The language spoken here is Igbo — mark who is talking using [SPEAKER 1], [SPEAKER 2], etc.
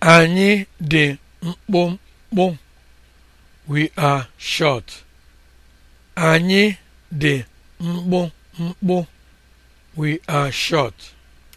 [SPEAKER 1] Anyị dị mkpụmkpụ. We are
[SPEAKER 2] short. Anyị dị mkpụmkpụ. We are short.